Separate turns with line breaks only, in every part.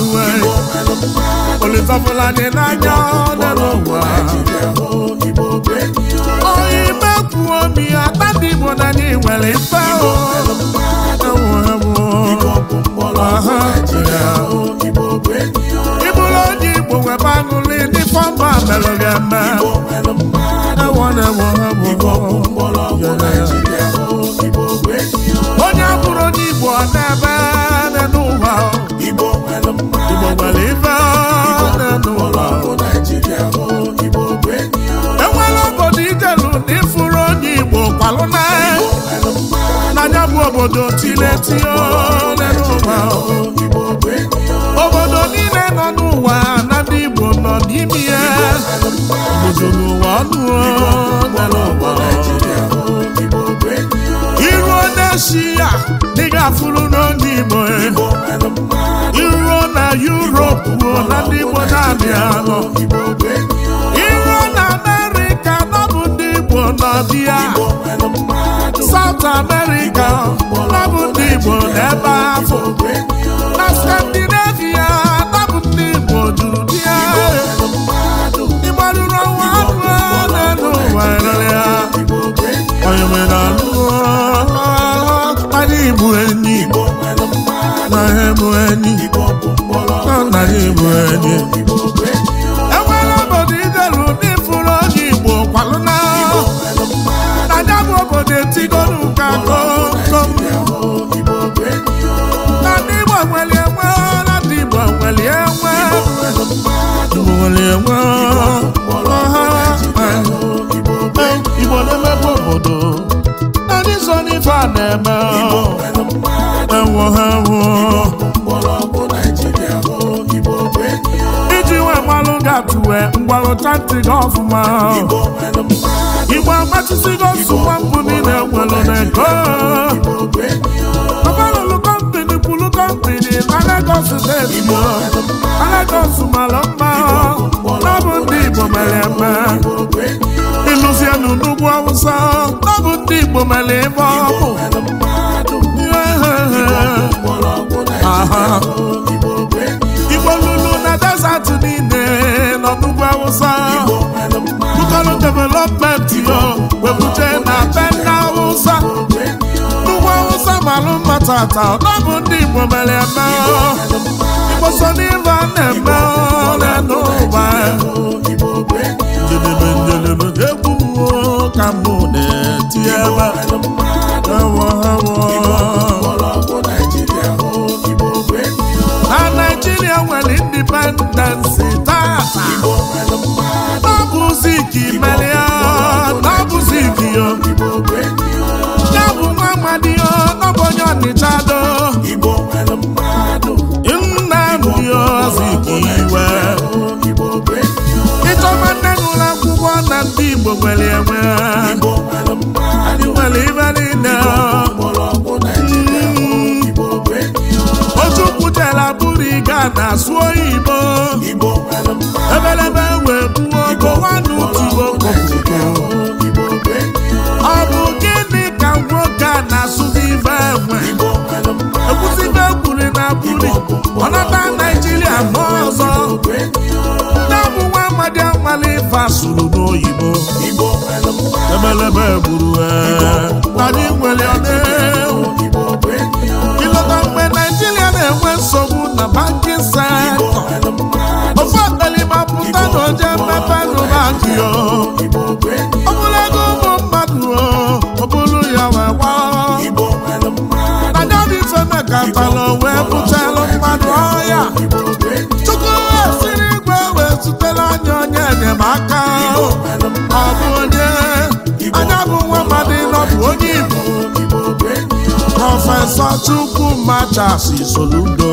mmanụ olifafụla na n'anya dị n'ụwa onye Oyi, kwuo omi ya dị igbo na ndị nwere ife ịbụrụ onye igbo webe aṅụlị ndị fọmba melụ gị eme onye abụrụ onye igbo ọ na-ebe na enwere obodo ijelu na ịfụrụ onye Igbo kwalụ e. bụ obodo niile nọ n'ụwa na ndị Igbo nọ n'ime ya obodo n'ụwa ọnụ n'ụwa isi ya dịga fụrụ n'olu na Europe ruo na ndị Igbo na-abịa iruo na America nọbụ ndị na nọbịa South America nọbụ ndị Igbo bụ enyi na bụ enyi na nna E bụ enyi enwere obodo idelu n'ifuru Igbo na ya obodo etigolu ka na Igbo nwere na ndị Igbo nwere gbalụ chanti gị ọfụma igbo agbachisigo nsụkwa mbụ niile nwere n'ego lokalụlụ kọmpini kwulu kọmpini na Lagos steeti na Lagos mara mma ọ ndị igbo mere eme ịlụzienụ n'ugwu awụsa ọ ndị igbo mere ebe igbo lulu na desat niile n'ugwu awụsa Local development yo webuje na be ndị awụsa n'ugwu awụsa malụ mma tata ọ ndị Igbo mere eme Igbo so a na-eme ole n'ụwa njedebe egwu ka mụ na Naijiria nwere indipendensi tata n'ọbụzi ka imelia n'ọbụzi ka yo ya bụ nwa onye ya iwe nne akwụkwọ na ndị Igbo nwere enwe nwere na-asụ oyibo ebelebe wee buo kowanutubo kopuko ọ bụ gịnị ka nwoke a na-asụzi ife enwe ekwuzibe kwuri na buri ọnata naijiria ma ọzọ nne bụ nwa amadi anwale ife asụrụ n'oyibo ebelebe gburu e. anyị nwere ọnewu Ofe ọkalịma pụta na oje mmepe n'ụba akụ ya ọ bụrụ ego ụmụ mmadụ ọ bụrụ ya wee gwa nadadị ifeme ka mbalụ wee bụtelu mmadụ ọhịa chukwu siri igwe wee zutela anya onye enyemaka ọ bụ onye anya bụ nwa mmadụ nọbụ onye igbo prọfesọ Chukwumacha Soludo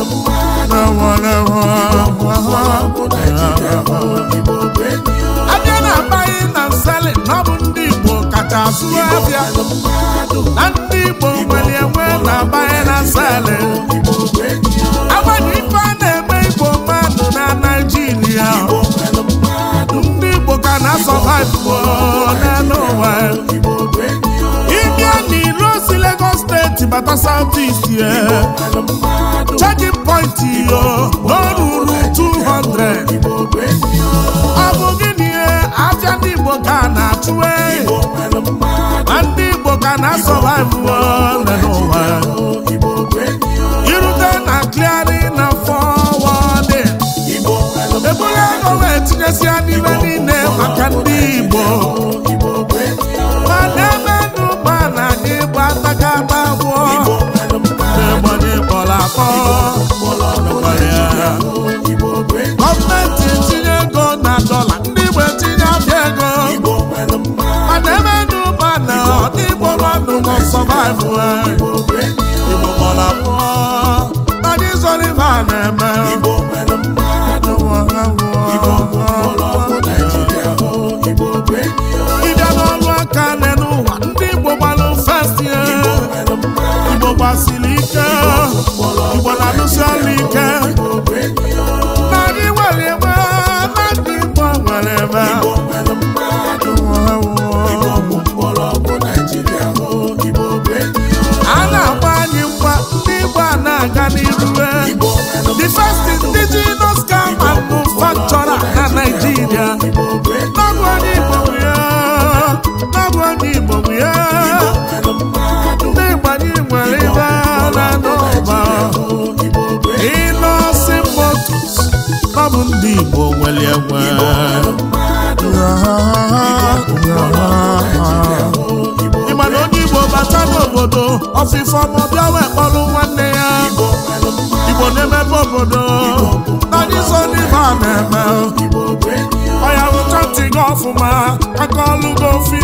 abịa na amaghị na nsali na ọ bụ ndị Igbo kacha asụ abịa na ndị Igbo nwere enwe na amaghị na nsali agbanị ife a na-eme Igbo mmadụ na Naijiria ndị Igbo ka na-asọba n'elu ụwa ịbịa bata South East yeah. Checking point yo no ruru 200 ọ bụ gịnị aja ndị Igbo ka eh. na-achụ ndị Igbo ka na-asọvaivu oh. akọ gọọmenti etinye ego na dọla ndị Igbo etinye abịa ego mana eme n'ụba na ndị Igbo mmadụ nọ sọvaivụ ha Igbo mara pụọ mana ibe a na-eme gbasiri ike igbo na alụsiala ike narị nwere ebe na nwere ebe a na-agba anyị mgba ndị igbo a na-aga n'iru ndị Igbo nwere egwe ị ma onye Igbo bata n'obodo ọfịfọ ma bịa wee kpọrọ nwanne ya Igbo na-emepe obodo nadizo n'ibe a na-eme ọya rụcha ntị gị ọfụma aka ọlụ gị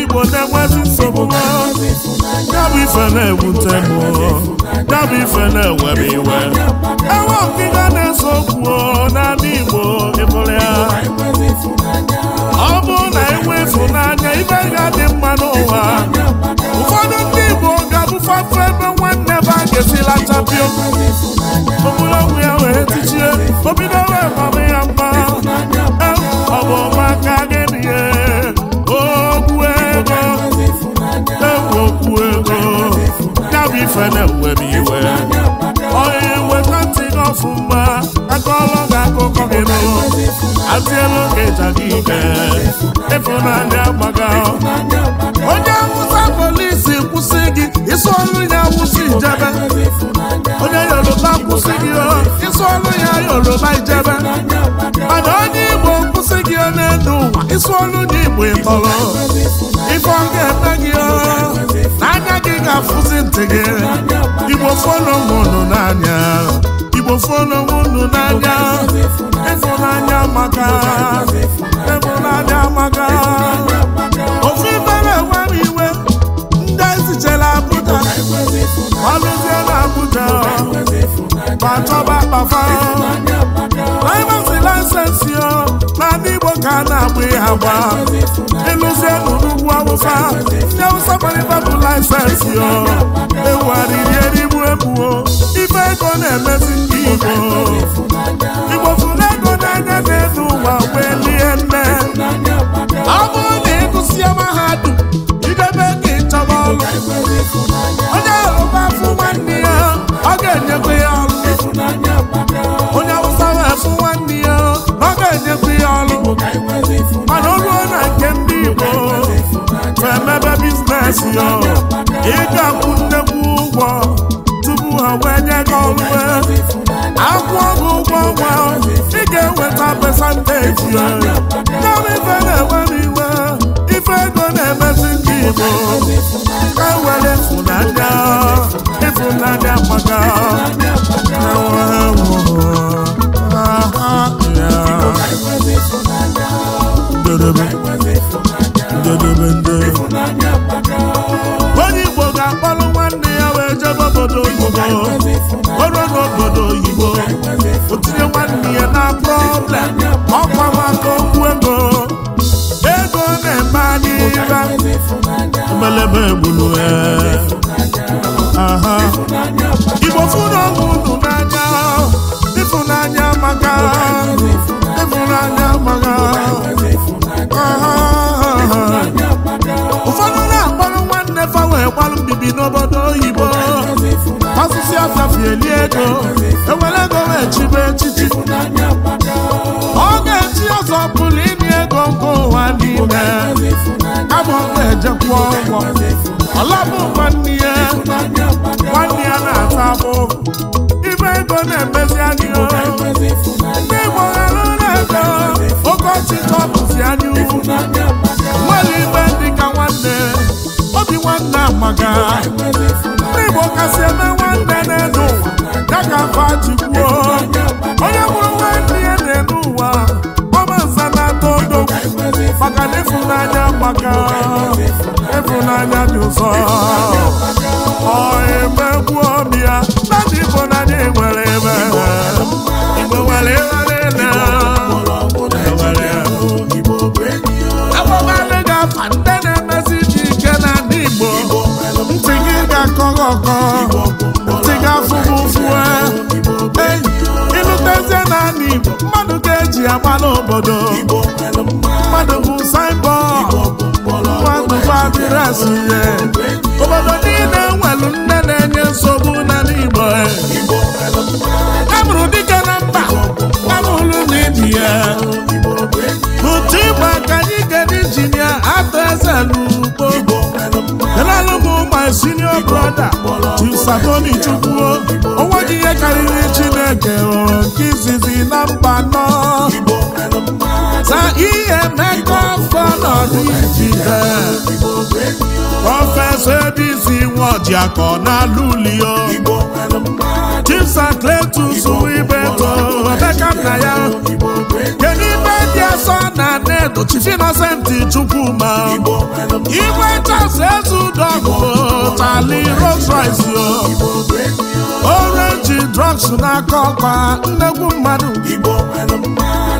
ndị Igbo na-enwezi nsogbu ha ya bụ ife na-ewute m ya bụ ife na-ewere iwe enwe ọkịga na-ese okwu n'ala Igbo ịbụrụ ya ọ bụrụ na enwe ịfụnanya ibe ga-adị mma n'ụwa ụfọdụ ndị Igbo ga-abụfafe ebe nwanne ba ga-esila chapio ogologo ya wee tichie o bidowe mama ya mma ọ bụ ọma gị ife na-ewe m iwe onye weta ntị gị ọfụma akọọlọ gị akụkọ gị nụ atielu gị ịja gị ike ịfụnanya gbaga onye nwụta polisi kwụsị gị isi ọrụ ya awụsa ijebe onye yoruba kwụsị gị isi ọrụ ya yoruba ijebe mana onye igbo kwụsị gị n'elu ụwa isi ọrụ ya igbo ịtọrọ ife ọ ga-eme gị na-afụzi ntị gị igbo fọnụnụ n'anya igbo fọnụnụ n'anya ịfụnanya maka ịfụnanya maka ofe bara enwere iwe ndị ezichere abụja ọlụzie na abụja ma chọba akpafa laịsensi na ndị igbo ka a na-agba ya awụsa ndị awụsa gbarịba bụ laịsensị o ewugharịri erigbu egbuo ife ego na-emezi ndị igbo igbo fụrụ ego n'anya na-elu ụwa wee lie nne obelebe gburu eh. igbo fụrụ unu n'anya ịfụnanya maka ịfụnanya maka ụfọdụ na-akparụ nwanne fa wee mbibi n'obodo oyibo asụsụ asafieli ego ewere ego wee echichi ọ ga eji ọzọ pụrụ ịnye ego nke ụwa n'ime ọmụba ejekwa nwanne ya nwanne ya na-ata abụ ibe ego na-emezi anyị ndị Igbo ghara na-ego okeọchị ka anyụ nwanne anyị nwere dị ka nwanne obi nwanne amaga ndị Igbo kasị eme nwanne na-ede ụwa ọzọ obodo niile nwelu nne na-enye nsogbu n'ala Igbo amụrụ dike na mba amụrụ n'ibi ya ụtụ ịgba ka anyị gara injinia atọ eze n'ugbo elalụmụ my senior brọda Chisabomi Chukwuo onwe gị ihe karịrị Chineke hụrụ nke izizi na mba nọ na ihe emeka afọ nọdụ ijide prọfesọ ebisi nwojiakọ n'alụlio chipsakletus ibeto emeka nna ya kedu ibe dị asọ na nedo chifinọsenti chukwuma igwe chas ezudogụ tali Rolls Royce orenji drọgs n'aka ọkpa nnegwu mmadụ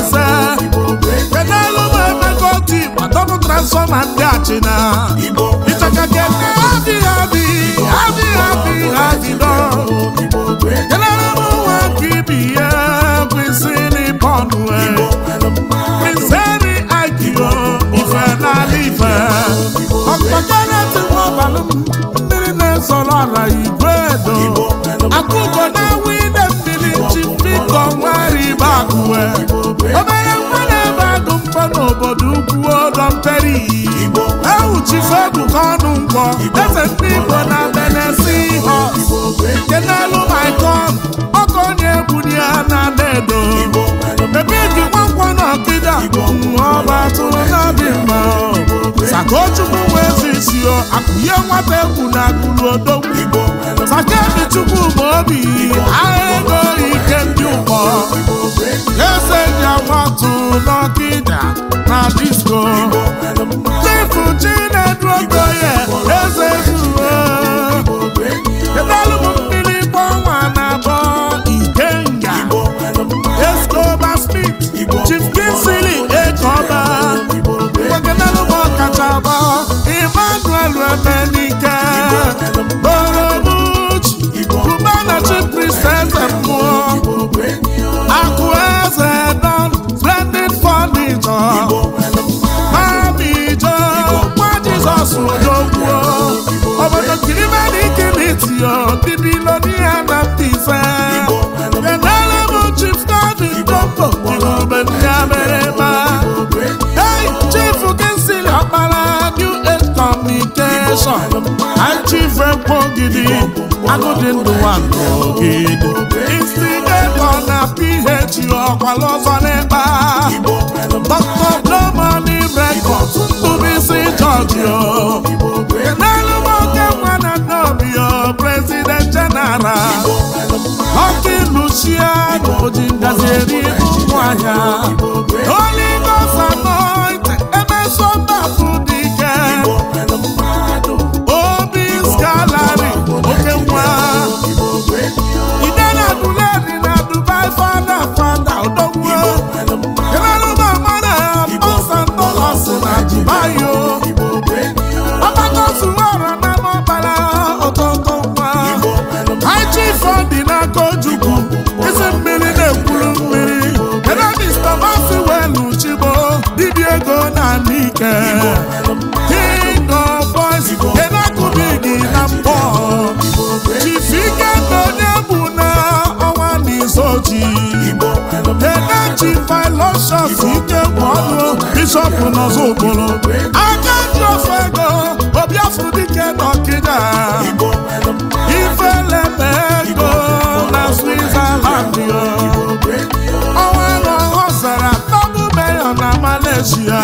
ise pedalu ma emekọta igba dọbụ transfọma ndị achịna ịchaka kene adịghị adị adịghị adịghị adịdọ kenere m nwa ibi ya kwesị n'ịpọnụ kwesịrị agịgo ife n'ala ife ọkpọkenetimọbalụ mmiri na-ezọrọ ala igwe edo na-enwe ibe agụwe obere mgbe na-ebe agụ mkpọ n'obodo ukwu ọdọ mperi ewuchife ebuka ọnụ mkpọ eze ndị igbo na benesi ha nke n'elu maikon ọkọ onye ebuli ya na adedo ebe eji nwankwọ na ọkịda ọba atụrụ n'obi mma sakochukwu wee zisio akụnye nwata egwu na akụrụ odogwu sakebi chukwu ma obi agha ego ike ọkpọ eze dị agbatu n'ọkịda na disko chifu chinedu okoye eze zuwe ọkpọ gidi agụdị ndụ nwa ndụ gị instigatọ na ph ọkwalọzọ n'ịkpa dọkta blomani isi tụbisi jọjio n'elu nwoke nwa na nnọbio prezident jeneral ọkị lucia na oji ngazi eri ụmụahịa oligosanọ emeso bishọp ike kpọọlụ bishọpụ nọzọ okporo aka ndị ofe ego obi afụ dike na ọkịda ifelebe ego na switzerland onwe na ọhọ zara tọbụ merion na malaysia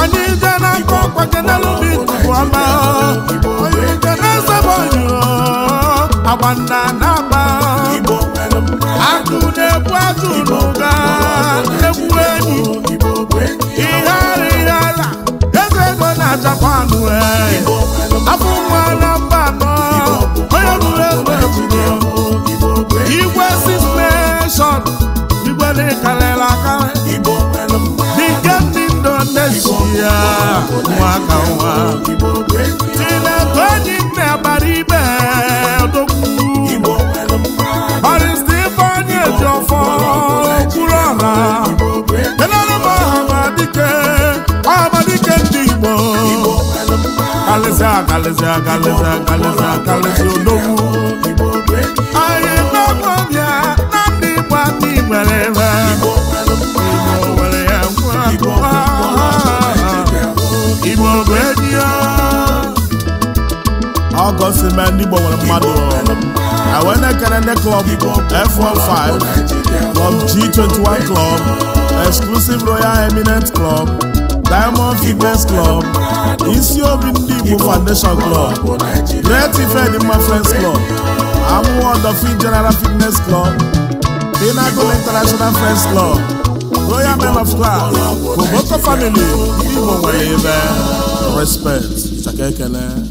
anyị je n'aka ọkpa genelụbi tupu ọma onye ike na-ezebe oyi agba na otu n'ụga egwu enyi ihere ihere ala eze ego na japan afọ nwa na mba akalịsị akalịsị akalịsị akalịsị odogwu anyị n'ọkọbịa na ndị Igbo aka igbere ebe nwere ya ngwa Igbo bụ edi ọgọsi ma ndị Igbo nwere Club F15 Club G21 Club Exclusive Royal Eminent Club Diamond Fitness Club isi obi ndị Igbo Foundation Club Great Ifedimma Friends Club Amuwo Dolphin General Fitness Club Pinnacle International Friends Club Royal Men of Class Koboko Family Igbo nwere ebe respect chaka ekele